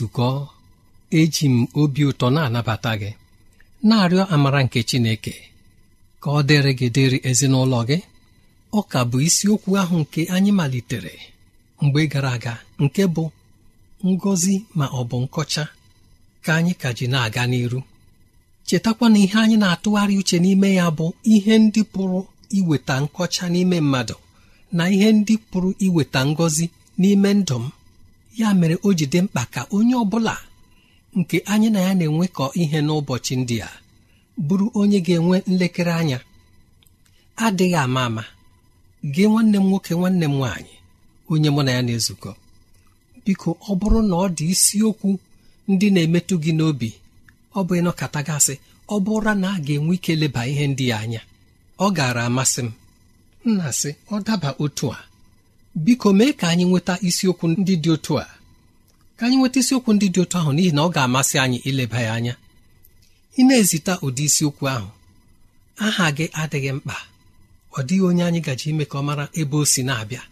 nzukọ eji m obi ụtọ na-anabata gị na-arịọ amara nke Chineke ka ọ dịrị gị dịrị ezinụlọ gị ọ ka bụ isiokwu ahụ nke anyị malitere mgbe gara aga nke bụ "ngozi ma ọ bụ nkọcha ka anyị ka ji na-aga n'iru chetakwa na ihe anyị na-atụgharị uche n'ime ya bụ ihe ndị pụrụ iweta nkọcha n'ime mmadụ na ihe ndị pụrụ iweta ngọzi n'ime ndụ m ya mere o ji dị mkpa ka onye ọbụla nke anyị na ya na-enwekọ ihe n'ụbọchị ndị a bụrụ onye ga-enwe nlekere anya adịghị ama ama gee nwanne m nwoke nwanne m nwaanyị onye mụ na ya na-ezukọ biko ọ bụrụ na ọ dị isiokwu ndị na-emetụ gị n'obi ọ bụ ịnọkata gasị ọ bụrụ na a ga-enwe ike leba ihe ndị anya ọ gaara amasị m nna sị ọ daba otu a biko mee ka anyị nweta isiokwu ndị dị otu a ka anyị nweta isiokwu ndị dị otu ahụ n'ihi na ọ ga-amasị anyị ileba ya anya ị na-ezita ụdị isiokwu ahụ aha gị adịghị mkpa ọ dịghị onye anyị gaji ime ka ọ mara ebe o si na-abịa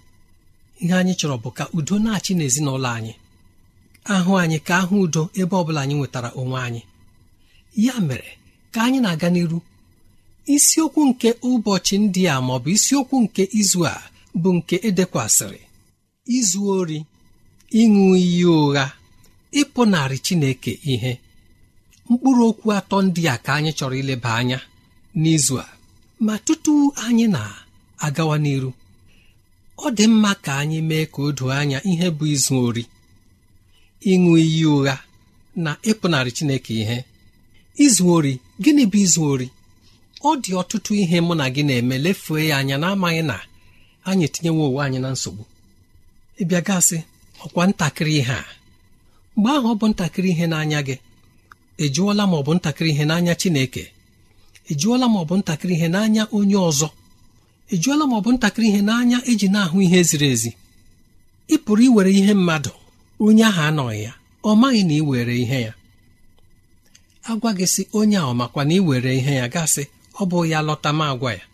ihe anyị chọrọ bụ ka udo na-achị n'ezinụlọ anyị ahụ anyị ka ahụ udo ebe ọ bụla anyị nwetara onwe anyị ya mere ka anyị na-aga n'iru isiokwu nke ụbọchị ndị a ma ọ bụ isiokwu nke izu a bụ nke edekwasịrị izu ori ịṅụ iyi ụgha ịpụnarị Chineke ihe mkpụrụ okwu atọ ndị a ka anyị chọrọ ileba anya n'izu a ma tutu anyị na-agawa n'iru ọ dị mma ka anyị mee ka o doo anya ihe bụ izu ori ịṅụ iyi ụgha na ịpụnarị Chineke ihe izu ori gịnị bụ izu ori ọ dị ọtụtụ ihe mụ na gị na-eme lefue ya anya n'amaghị na anyị etinyewo ụwa anyị na nsogbu ịbịa gasị ọkwa ntakịrị ihe a mgbe ahụ ọ bụ ntakịrị ihe n'anya gị ejụọla ma ọ bụ ntakịrị ihe n'anya Chineke ejụọla ma ọ bụ ntakịrị ihe n'anya onye ọzọ ejụọla ma ọ bụ ntakịrị ihe n'anya eji na-ahụ ihe ziri ezi ị pụrụ iwere ihe mmadụ onye ahụ anọghị ya ọ maghị na ị were ihe ya agwa gị si onye a ọ makwa na ị were ihe ya gasị ọ bụ ya lọta ma agwa ya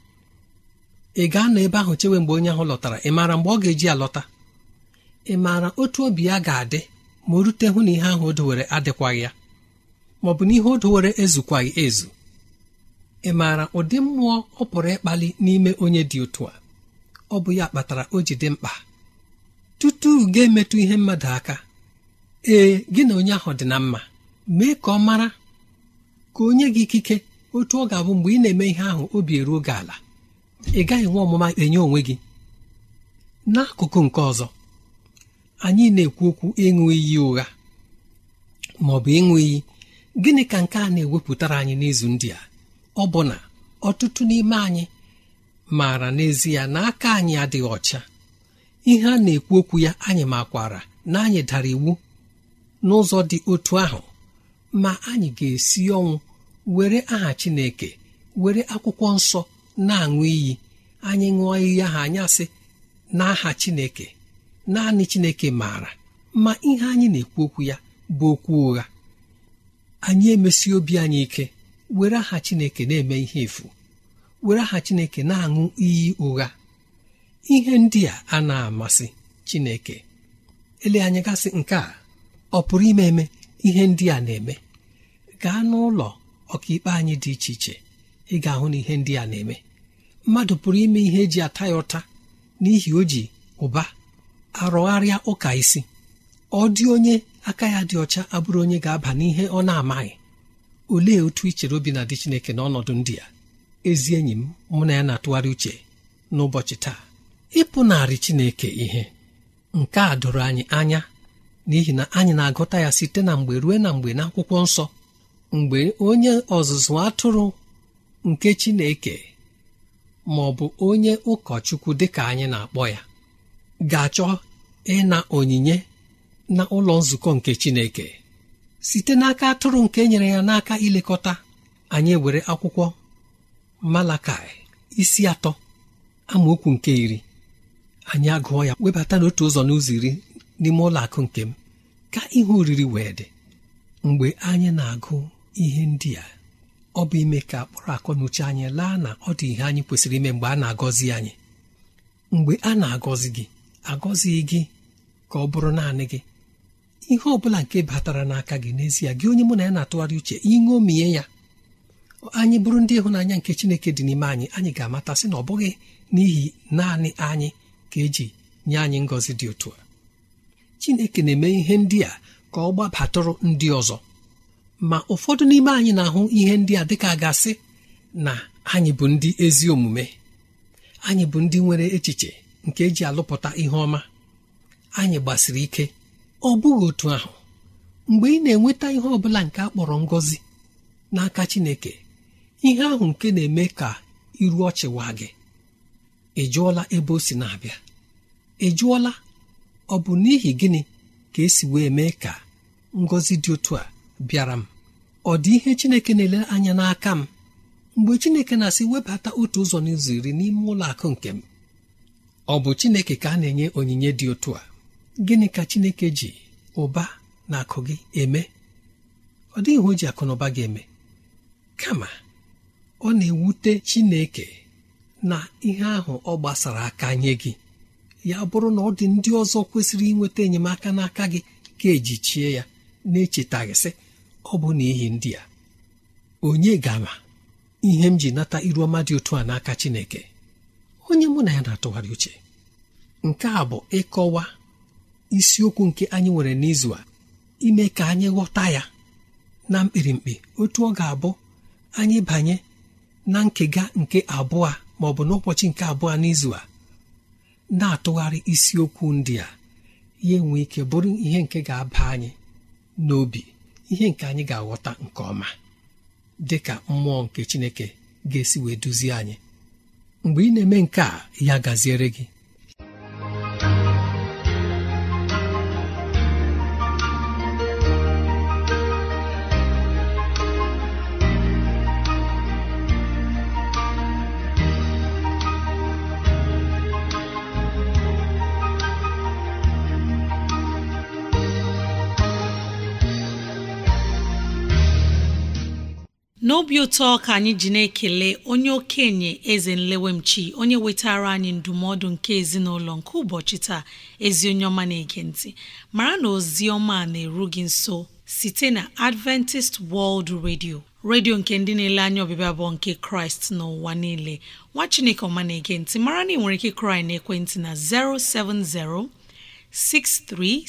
ị ga-anọ ahụ chewe mgbe onye ahụ lọtara ị maara mgbe ọ ga-eji alọta ị maara otu obi ya ga-adị ma o rute hụ na ihe ahụ o dowere adịkwaghị ya ma ọ bụ na ihe o dowere ezukwaghị ezu ị maara ụdị mmụọ ọ pụrụ ịkpali n'ime onye dị otu a ọ bụ ya kpatara o ji dị mkpa tutu ga-emetụ ihe mmadụ aka ee gị na onye ahụ dị na mma mee ka ọ mara ka onye gị ikike otu ọ ga-abụ mgbe ị na-eme ihe ahụ obi eruo gị ala ị gaghị nwe ọmụma enye onwe gị n'akụkụ nke ọzọ anyị na-ekwu okwu ịṅụ iyi ụgha ma ọ bụ ịṅụ iyi gịnị ka nke a na-ewepụtara anyị n'izu ndị a ọ bụ na ọtụtụ n'ime anyị maara n'ezie na aka anyị adịghị ọcha ihe a na-ekwu okwu ya anyị makwara na anyị dara iwu n'ụzọ dị otu ahụ ma anyị ga-esi ọnwụ were aha Chineke were akwụkwọ nsọ na-aṅụ iyi anyị ṅụọ iyi ahụ anyị asị n'aha Chineke naanị Chineke maara ma ihe anyị na-ekwu okwu ya bụ okwu ụgha anyị emesi obi anyị ike were aha Chineke na-eme ihe efu were aha Chineke na-aṅụ iyi ụgha ihe ndị a a na-amasị Chineke ele anyị gasị nke a ọ pụrụ ime eme ihe ndị a na-eme gaa n'ụlọ ọkaikpe anyị dị iche iche ị ga-ahụ na ihe ndị a na-eme mmadụ pụrụ ime ihe eji ata ya ụta n'ihi o ji ụba arụgharịa ụka isi ọ dị onye aka ya dị ọcha abụrụ onye ga-aba n'ihe ọ na-amaghị olee otu ichere chere obi na dị Chineke n'ọnọdụ ndị a ezi enyi m mụ na ya na-atụgharị uche n'ụbọchị taa ịpụnarị Chineke ihe nke a doro anyị anya n'ihi na anyị na-agụta ya site na mgbe ruo na mgbe n'akwụkwọ nsọ mgbe onye ọzụzụ atụrụ nke Chineke ma ọ bụ onye ụkọchukwu dịka anyị na-akpọ ya ga-achọ ịna onyinye na ụlọ nzukọ nke Chineke site n'aka atụrụ nke nyere ya n'aka ilekọta anyị were akwụkwọ Malakai isi atọ amaokwu nke iri anyị agụọ ya webata n'otu ụzọ n'ụzọ iri n'ime ụlọ akụ nke m ka ihe oriri wee dị mgbe anyị na-agụ ihe ndị a ọ bụ ime ka akpọrọ akọ na uche anyị laa na ọ dị ihe anyị kwesịrị ime mgbe a na-agọzi anyị mgbe a na-agọzi gị agọzighị gị ka ọ bụrụ naanị gị ihe ọ bụla nke batara n'aka gị n'ezie gị onye mụ na ya na-atụgharị uche iṅomiye ya anyị bụrụ ndị ịhụnanya nke chineke dị n'ime anyị anyị ga-amatasị na ọ bụghị n'ihi naanị anyị ka eji nye anyị ngọzi dị otu a chineke na-eme ihe ndị a ka ọ gbabatụrụ ndị ọzọ ma ụfọdụ n'ime anyị na-ahụ ihe ndị a dịka gasị na anyị bụ ndị ezi omume anyị bụ ndị nwere echiche nke eji alụpụta ihe ọma anyị gbasiri ike ọ bụghị otu ahụ mgbe ị na-enweta ihe ọ bụla nke a kpọrọ ngọzi n'aka Chineke ihe ahụ nke na-eme ka iru ọchịwa gị ị jụọla ebe o si na-abịa ị jụọla ọ bụ n'ihi gịnị ka esi wee mee ka ngọzi dị otu a bịara m ọ dị ihe chineke na-ele anya n'aka m mgbe chineke na-asị webata otu ụzọ n'ụzọ iri n'ime ụlọ akụ nke m ọ bụ chineke ka a na-enye onyinye dị otu a gịnị ka chineke ji ụba na akụ gị eme ọ dịghị ihe o ji akụ na ụba gị eme kama ọ na-ewute chineke na ihe ahụ ọ gbasara aka nye gị ya bụrụ na ọ dị ndị ọzọ kwesịrị inweta enyemaka n'aka gị ka ejichie ya na-echetaghịsị ọ bụ n'ihi ndị a onye gara ihe m ji nata iru ọma dị otu a n'aka Chineke onye mụ na ya na-atụgharị uche nke a bụ ịkọwa isiokwu nke anyị nwere n'izu a ime ka anyị ghọta ya na mkpirimkpi otu ọ ga-abụ anyị banye na nkega nke abụọ ma ọ bụ n'ụbọchị nke abụọ n'izu a na-atụgharị isiokwu ndị a ya enwe ike bụrụ ihe nke ga-aba anyị n'obi ihe nke anyị ga-aghọta nke ọma dị ka mmụọ nke Chineke ga-esi wee duzie anyị mgbe ị na-eme nke a ya gaziere gị ụtọ ka anyị ji na-ekele onye okenye eze nlewemchi onye wetara anyị ndụmọdụ nke ezinụlọ nke ụbọchị taa ezi onye ọma na-ege mara na ozi ọma na-eru gị nso site na Adventist World Radio redio nke ndị na-ele anya ọbịbịa abụọ nke kraịst n'ụwa niile nwa chineke ọma na-ege mara na ị nwere ike kraị na ekwentị na 070 6363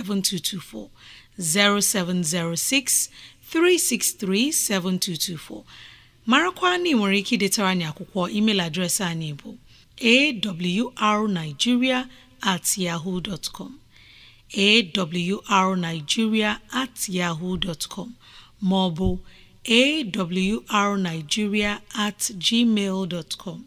7224 0706 363724 marakwa na ị nwere ike idetara anyị akwụkwọ email adreesị anyị bụ awrnigeria at yaho com awrnigeria at yaho com ma ọ bụ awrnigeria at gmail com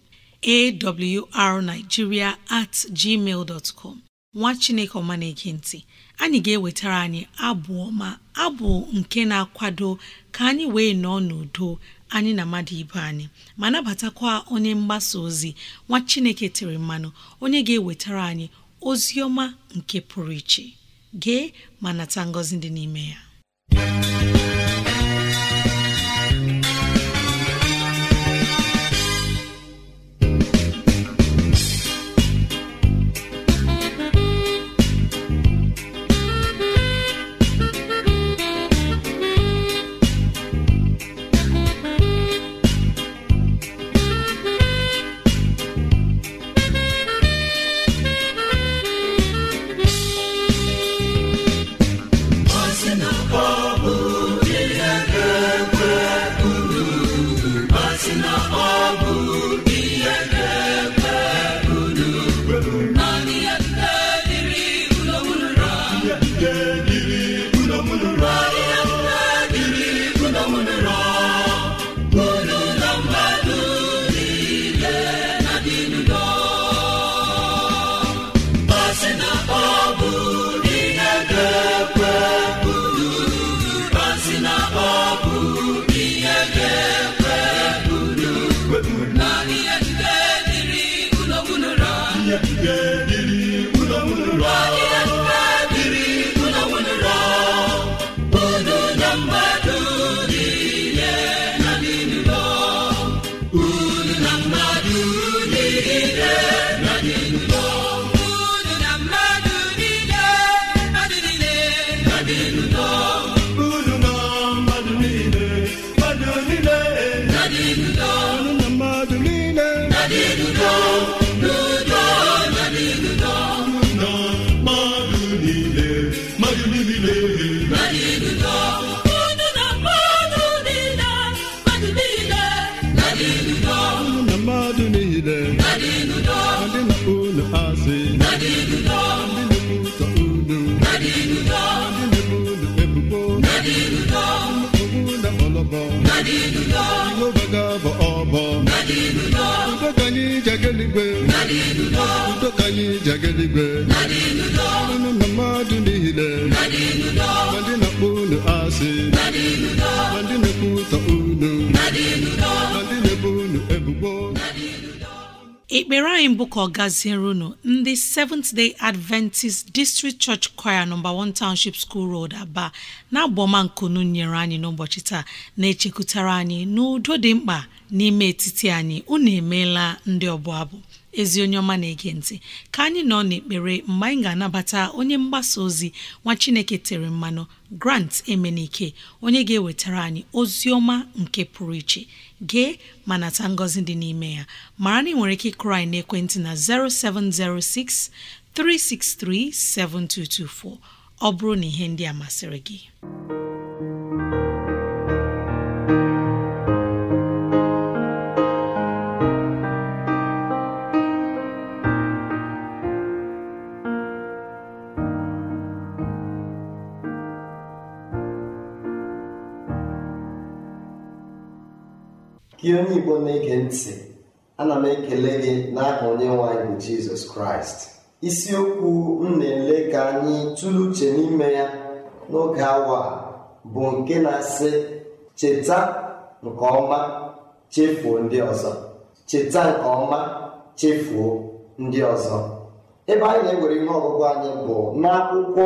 awrnigeria at gmail com nwa chineke ọma na ntị anyị ga-ewetara anyị abụọ ma abụ nke na-akwado ka anyị wee nọọ n'udo anyị na mmadụ ibe anyị ma nabatakwa onye mgbasa ozi nwa Chineke tiri mmanụ onye ga-ewetara anyị ozi ọma nke pụrụ iche gee ma nata ngọzi dị n'ime ya udo anyị ji aga na mmadụ niile ma ndị na-akpọ unu asị ma ndị na unu ma ndị na-ebo unu ebubo ekpere anyị mbụ ka ọ gaziere unu ndị Seventh Day Adventist District Church Choir nọmba 1 Township School Road Aba na-abụ nkunu nyere anyị n'ụbọchị taa na-echekwutara anyị n'udo dị mkpa n'ime etiti anyị unu emeela ndị ọbụ abụ ezi onye ọma na-ege ntị ka anyị nọ n'ekpere mgbe anyị ga-anabata onye mgbasa ozi nwa chineke tere mmanụ grant emenike onye ga-ewetara anyị ozi ọma nke pụrụ iche gee ma nata ngọzi dị n'ime ya mara na ị nwere ike ịkụrụ anyị ekwentị na 0706 363 7224 ọ bụrụ na ihe ndị a masịrị gị gị onye igbo na-ege ntị ana m ekele gị n'aha onye nwanyị bụ jizọs kraịst isiokwu m na-ele ka anyị tụrụ uche n'ime ya n'oge awa bụ nke na-asị cheta nke ọma chefuo ndị ọzọ cheta nke ọma chefuo ndị ọzọ ebe anyị na-ewere ihe ọgụgụ anyị bụ n'akwụkwọ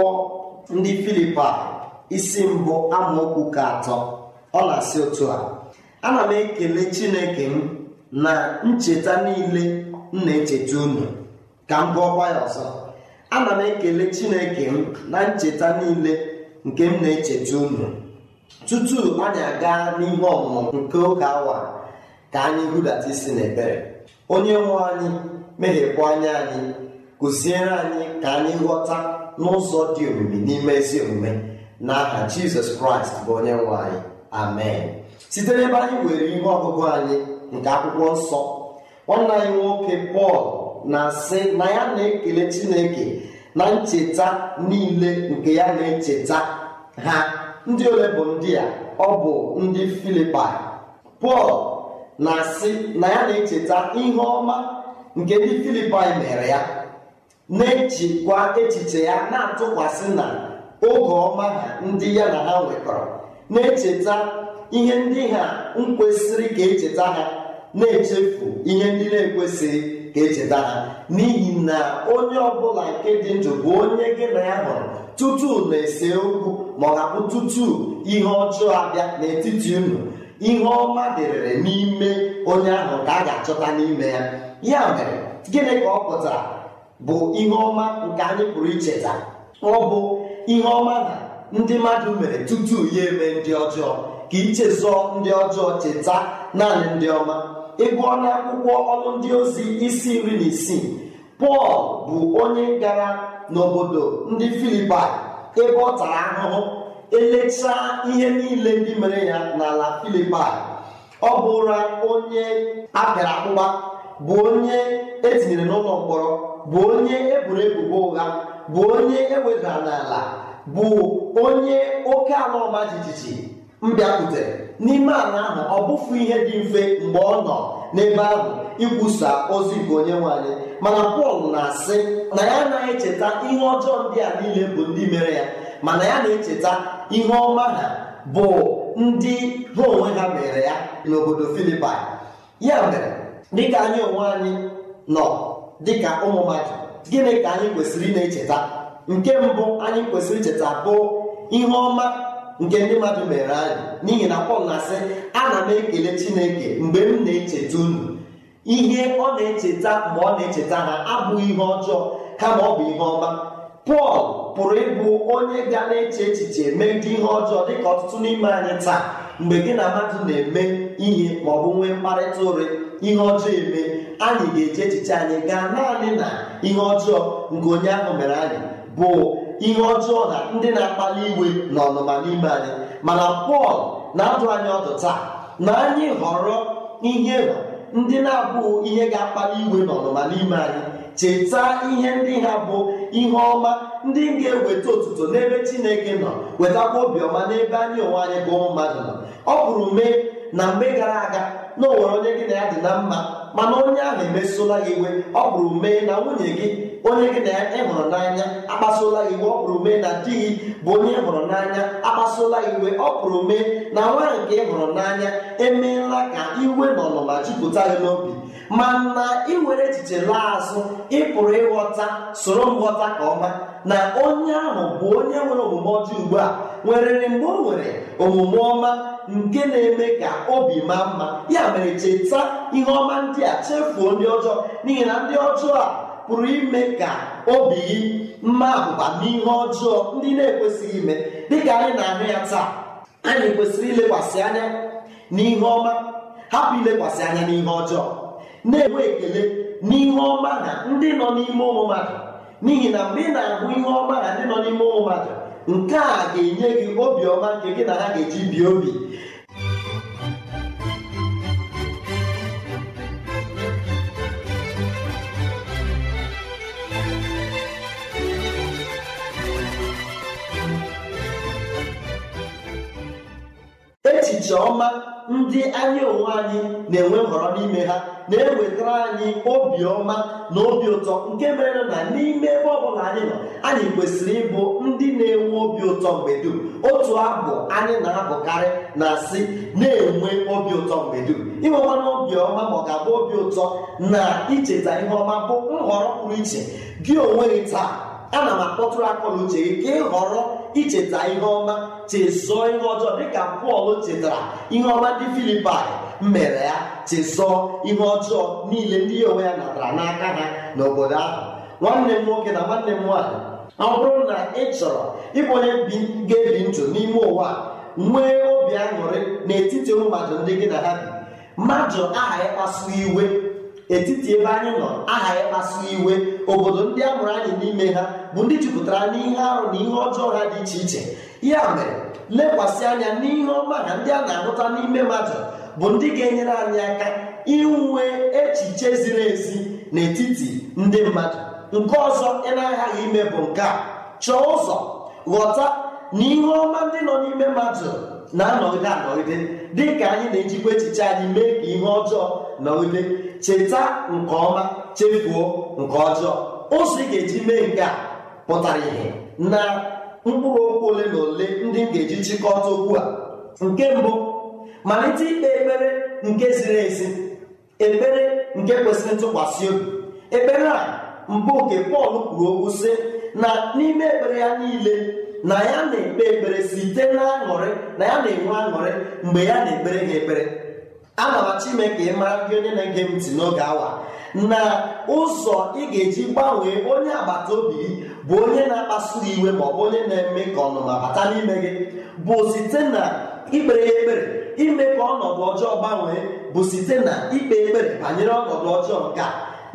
ndị filipa isi mbụ amaokwu ka atọ ọ na-asị otu a ana m ekele chineke m na ncheta niile m na-echeta unu ka m gụọkwa ya ọzọ ana m ekele chineke m na ncheta niile nke m na-echeta unu tutu anyị aga n'ihe ọmụmụ nke oge awa ka anyị hudata isi n'ebere onye nwe anyị mehiepụ anya anyị kụziere anyị ka anyị ghọta n'ụzọ dị omimi n'ime ezi omume n'aha jizọs kraịst bụ onye nwe anyị amen site n'ebe anyị nwere ihe ọgụgụ anyị nke akwụkwọ nsọ nwanne anyị nwoke pọl na-asị na ya na-ekele chineke na ncheta niile nke ya na-echeta ha ndị ole bụ ndị a ọ bụ ndị Filipa. pọl na-asị na ya na-echeta ihe ọma nke ndị filipai mere ya na ejikwa echiche ya na-atụkwasị na oge ọma ha ndị ya na ha nwekọrọ na-echeta ihe ndị ha nkwesịrị ka echeta ha na-echefu ihe ndị na-ekwesịghị ka echeta ha n'ihi na onye ọbụla nke dị ndụ bụ onye gị na ya hụrụ tutu na-ese okwu ma ọ ga-abụ tutu ihe ọjọọ abịa n'etiti unu ihe ọma dịrịrị n'ime onye ahụ ka a ga-achọta n'ime ya ya mere gịnị ka ọ pụtara bụ ihe ọma nke anyị pụrụ icheta ọ bụ ihe ọma na ndị mmadụ mere tutu ya eme ndị ọjọọ ka ichezọ ndị ọjọọ cheta naanị ndị ọma Ịbụ ọnụ akwụkwọ ọrụ ndị ozi isi nri na isii pọl bụ onye gara n'obodo ndị Filipa ebe ọ tara ahụhụ elechaa ihe niile ndị mere ya n'ala Filipa, ọ bụra onye apịara akpụkpa bụ onye etinyere n'ụlọ mkpọrọ bụ onye eburu ebubo ụgha bụ onye ewedara n'ala bụ onye oke ala ọma jijiji m bịakwutere n'ime ala ahụ ọ bụfu ihe dị mfe mgbe ọ nọ n'ebe ahụ ikwusa ozi nke onye nwanyị mana pọl na-asị na ya anaghị echeta ihe ọjọọ ndị a niile bụ ndị mere ya mana ya na-echeta ihe ọma ha bụ ndị ha onwe ha mere ya n'obodo filipaị ya mere dịka anyị onwe anyị nọ dịka ụmụ mmadụ gịnị ka anyị kwesịrị na-echeta nke mbụ anyị kwesịrị icheta bụ ihe ọma nke ndị mmadụ mere anyị n'ihi na pọl na-asị ana m ekele chineke mgbe m na-echeta unu ihe ọ na-echeta mgbe ọ na-echeta ha abụghị ihe ọjọọ kama ọ bụ ihe ọma pọl pụrụ ịbụ onye ga na-eche echiche megide ihe ọjọọ dịka ọtụtụ n'ime anyị taa mgbe gị na mmadụ na-eme ihe ma ọ bụ nwee mkparịta ụre ihe ọjọọ eme anyị ga-eche echiche anyị gaa naanị na ihe ọjọọ nke onye ahụ mere anyị bụ ihe ọjọọ na ndị na-akpali iwe na ọnụma n'ime anyị mana pọl na-adụ anyị ọdụ taa na anyị họrọ ihe ndị na-abụghị ihe ga-akpali iwe na ọnụma n'ime anyị cheta ihe ndị ha bụ ihe ọma ndị ga-eweta otuto n'ebe chineke nọ wetakwa obiọma n'ebe anyị onwe anyị bụ ụmụ mmadụ nọ ọ bụrụ mee na mgbe gara aga na onwere onye gị na ya dị na mma mana onye ahụ emesụla gị iwe ọ bụrụ mee na nwunye gị onye gị na ya ịhụrụ n'anya akpasuola iwe ọ pụrụ mee na di gị bụ onye ịhụrụ n'anya akpasuola iwe ọ pụrụ mee na nwanyị nke ịhụrụ n'anya emeela ka iwe na ọnụma jupụta gị n'obi na iwere echiche laa azụ ịpụrụ ịghọta soro nghọta ka ọma na onye ahụ bụ onye nwere omume ọjọọ ugbu a nwere mgbe o nwere omume ọma nke na-eme ka obi maa mma ya mere cheta ihe ọma ndị a chefuo ndị ọjọọ n'ihi na ndị ọjọọ a pụrụ ime ka obi gị mma abụba n'ihe ọjọọ ndị na-ekwesịghị ime dịka anyị na-ahụ ya taa anyị kwesịrị ilekwasị anya n'ihe ọma hapụ ilekwasị anya n'ihe ọjọọ na-enwe ekele n'ihe ọma na ndị nọ n'ime ụmụ mmadụ n'ihi na mgbe ị na-ahụ ihe ọma na ndị nọ n'ime ụmụ mmadụ nke a ga-enye gị obiọma nke gị na ha ga-eji bie obi echiche ọma ndị anyị onwe anyị na-enwe nhọrọ n'ime ha na-ewetara anyị obi ọma na obi ụtọ nke mere na n'ime ebe ọbụla anyị nọ anyị kwesịrị ịbụ ndị na-enwe obi ụtọ mgbe dum otu abụ anyị na-abụkarị na-asị na-enwe obi ụtọ mgbe dum inwekwana obi ọma ma ọ ga-abụ obi ụtọ na icheta ihe ọma bụ nhọrọ pụrụ iche gị onwe gị taa ana m akpọtụrụ akọ na uche gị ka ị họrọ icheta ihe ọma chesọ ihe ọjọọ dịka pọl chetara ihe ọma ndị filipai mere ya chesọ ihe ọjọọ niile ndị ya onwe ya natara n'aka ha n'obodo ahụ nwanne m nwoke na nwanne m nwaanyị ọ bụrụ na ị chọrọ ịbụ onye ga-ebi ndụ n'ime ụwa nwee obi aṅụrị n'etiti ụmụ mmadụ ndị gị na ha bi mmadụ aha ya iwe etiti ebe anyị nọ aha ya iwe obodo ndị a mụrụ anyị n'ime ha bụ ndị jupụtara n'ihe arụ na ihe ọjọọ ha dị iche iche ya mere lekwasị anya n'ihe ọma na ndị a na-ahụta n'ime mmadụ bụ ndị ga-enyere anyị aka inwe echiche ziri ezi n'etiti ndị mmadụ nke ọzọ ị na-aghaghị ime bụ nke a chọọ ụzọ ghọta na ihe ọma ndị nọ n'ime mmadụ na-anọgide anọgide dị ka anyị na-ejikwa echiche anyị mee ka ihe ọjọọ nọgide cheta nke ọma chefuo nke ọjọọ ụzọ ị ga-eji mee nke a pụtara ihe na mkpụrụ okwu ole na ole ndị ga-eji chịkọta okwu a nke mbụ malite ikpe ekpere nke ziri ezi ekpere nke kwesịrị ntụkwasị obi ekpere a mbụ nke Pọl kwuru okwu sị na n'ime ekpere ya niile na ya na-ekpe ekpere site n'aṅụrị na ya na-enwe aṅụrị mgbe ya na-ekpere ha ekpere a m achọ ime ka ị mara ndị onye na-ege m ntị n'oge awa na ụzọ ị ga-eji gbanwee onye agbata obi bụ onye na-akpasu iwe ma ọ bụ onye na-eme ka ọnụma bata n'ime gị bụ site na ikpere ekpere ime ka ọnọdụ ọjọọ gbanwee bụ site na ikpe ekpere banyere ọnọdụ ọjọọ nke a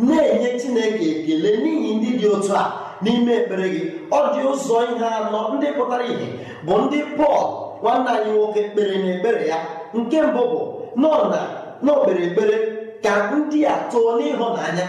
na-enye chineke ekele n'ihi ndị dị otu a n'ime ekpere gị ọ dị ụzọ ihe anọ ndị pụtara ihe bụ ndị pọl nwanne anyị nwoke kpere na ekpere ya nke mbụ bụ nọ na n'okpere ekpere ka ndị a too n'ịhụnanya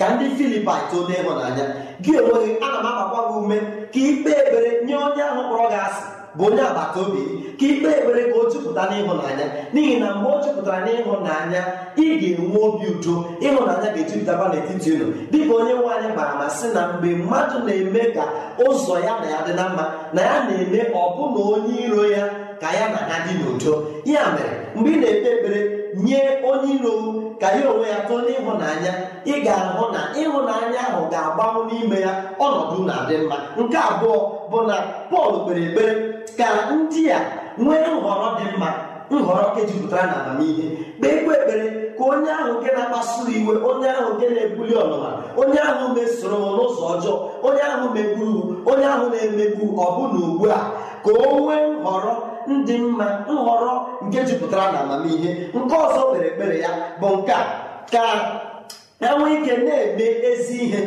ka ndị filipai too n'ịhụnanya gị onweghị ana m agbakwa gị ume ka ikpe ebere nye onye ahụ kpọrọ gị asị bụ onye agbata obi ka ikpe ebere ka o jupụta n'ịhụnanya n'ihi na mgbe o jupụtara n'ịhụnanya ị ga-enwe obi udo ịhụnanya ga-ejupụtaba n'etiti unu dịka onye nwe anyị gbara ma sị na mgbe mmadụ na-eme ka ụzọ ya na ya dị na mma na ya na-eme ọbụna onye iro ya ka ya na ha dị n'udo ya mere mgbe ị na-ekpe ekpere nye onye iro ka ya onwe ya tụọ n'ịhụnanya ị ga-ahụ na ịhụnanya ahụ ga-agbanwụ n'ime ya ọnọdụ na-adị mma nke abụọ bụ na Pọl kpere ekpere ka ndị a nwee nhọrọ dị mma nhọrọ nke jupụtara na amamihe kpeekwa ekpere ka onye ahụ nke na-akpasu iwe onye ahụ nke na-ebuli ọnụma onye ahụ mesoro n'ụzọ ọjọọ onye ahụ megburu onye ahụ na-emegbu ọbụna ugbu a ka o nwee nhọrọ ndị mma nhọrọ nke jupụtara na amamihe nke ọzọ kpere ekpere ya bụ nke a ka enwe ike na-eme ezi ihe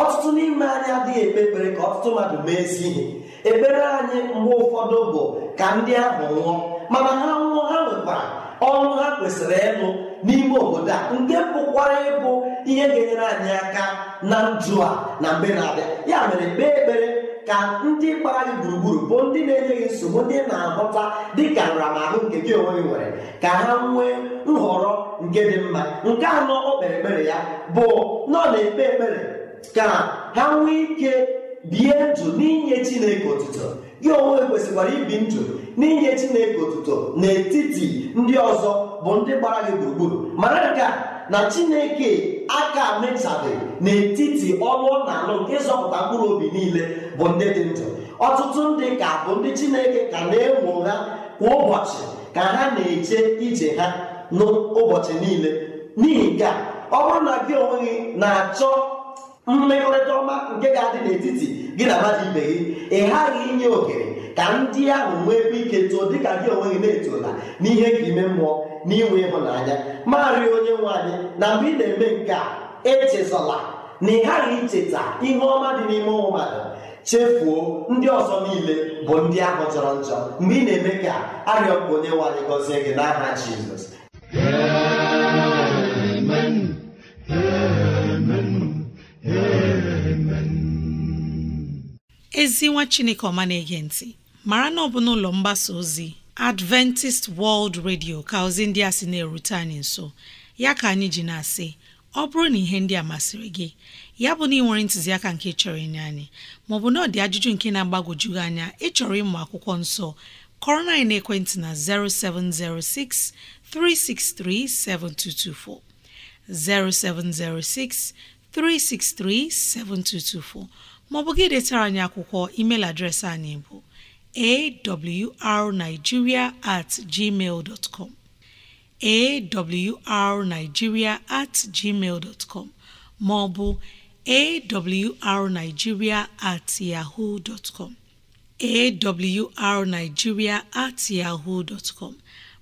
ọtụtụ n'ime anyị adịghị ekpe ekpere ka ọtụtụ mmadụ mee ezi ihe ekpere anyị mgbe ụfọdụ bụ ka ndị ahụ nwụọ mana ha nwụọ ha nwekwara ọnwụ ha kwesịrị ịnụ n'ime obodo a nke pụkwara ịbụ ihe ga-enyere anyị aka na njụ a na mgbe na-abịa ya mere kpee ekpere ka ndị gbara gị gburugburu bụ ndị na-enye gị nsogbu ndị na-ahụta dịka nramahụ nke gị onwe gị nwere ka ha nwee nhọrọ nke dị mma nke anọ o kpere ekpere ya bụ na na-ekpe ekpere ka ha nwee ike bie ndụ n'inye Chineke otuto gị onwe kwesịkwara ibi ndụ n'inye Chineke otuto n'etiti ndị ọzọ bụ ndị gbara gị gburugburu mara nke a na chineke aka mechabe n'etiti ọnụ ọ na-alụ nke ịzọpụta mkpụrụ obi niile bụ ndị dị ndụ ọtụtụ ndị ka bụ ndị chineke ka na-enwo ha kwa ụbọchị ka ha na-eje ije ha n'ụbọchị niile n'ihi nke ọ bụrụ na gị onwe gị na-achọ mmekọrịta ọma nke ga-adị n'etiti gị na mmadụ ibe gị ị ghaghị inye ohere ka ndị ahụ nwee ebe ike too dịka gị onwe gị na-etola n'ihe ka ime mmụọ n'iwe ịhụnanya marị onye nwe anyị na mgbe ị na-eme nke a echezọla na ị ghaghị icheta ihe ọma dị n'ime ụmụ mmadụ chefuo ndị ọzọ niile bụ ndị ahụ jọrọ njọ mgbe ị na-eme ka arịọ mgbe onye nwe anyị gọzie gị n'aha Jizọs ezi nwa chineke ọma na-ege ntị mara na ọ bụ n'ụlọ mgbasa ozi adventist world radio ka ozi ndị a sị na-erute anyị nso ya ka anyị ji na-asị ọ bụrụ na ihe ndị a masịrị gị ya bụ na ị nwere ntụziaka nke chọrọ inye anyị maọbụ na ọ dị ajụjụ nke na-agbagwoju gị anya ịchọrọ ịmụ akwụkwọ nsọ kọrọ na ekwentị na 0706 363 7224 0706 363 7224 maọbụ gị detara anyị akwụkwọ emeil adreesị anyị bụ awrnigeria at gmail dot com awrnigeria at gmail com ma ọ awrnigeria at yahoo com awrnigeria at yahoo com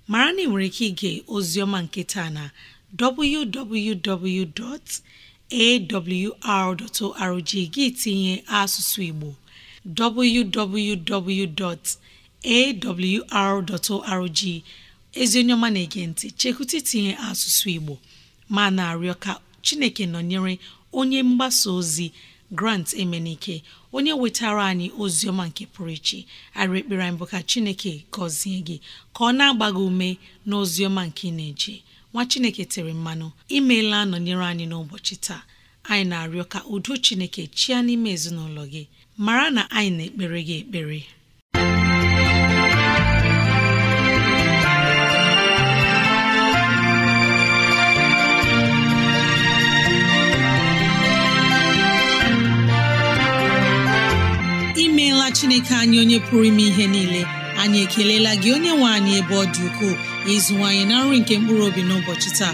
mara na ị nwere ike ige ozioma nke taa na www.awr.org gị tinye asụsụ Igbo www.awr.org ezi onye ọma na-ege ntị chekwụta itinye asụsụ Igbo ma na-arịọ ka Chineke nọnyere onye mgbasa ozi Grant Emenike onye wetara anyị ozi ọma nke pụrụ iche arị ekpere bụ ka Chineke gọzie gị ka ọ na-agba ume na ozi ọma nke ị na-eje nwa Chineke tere mmanụ imeela nọnyere anyị n'ụbọchị taa anyị na-arịọ ka udo Chineke chịa n'ime ezinụlọ gị mara na anyị na-ekpere gị ekpere imeela Chineke anyị onye pụrụ ime ihe niile anyị ekelela gị onye nwe anyị ebe ọ dị ukwuu ịzụwanyị na nri nke mkpụrụ obi n'ụbọchị taa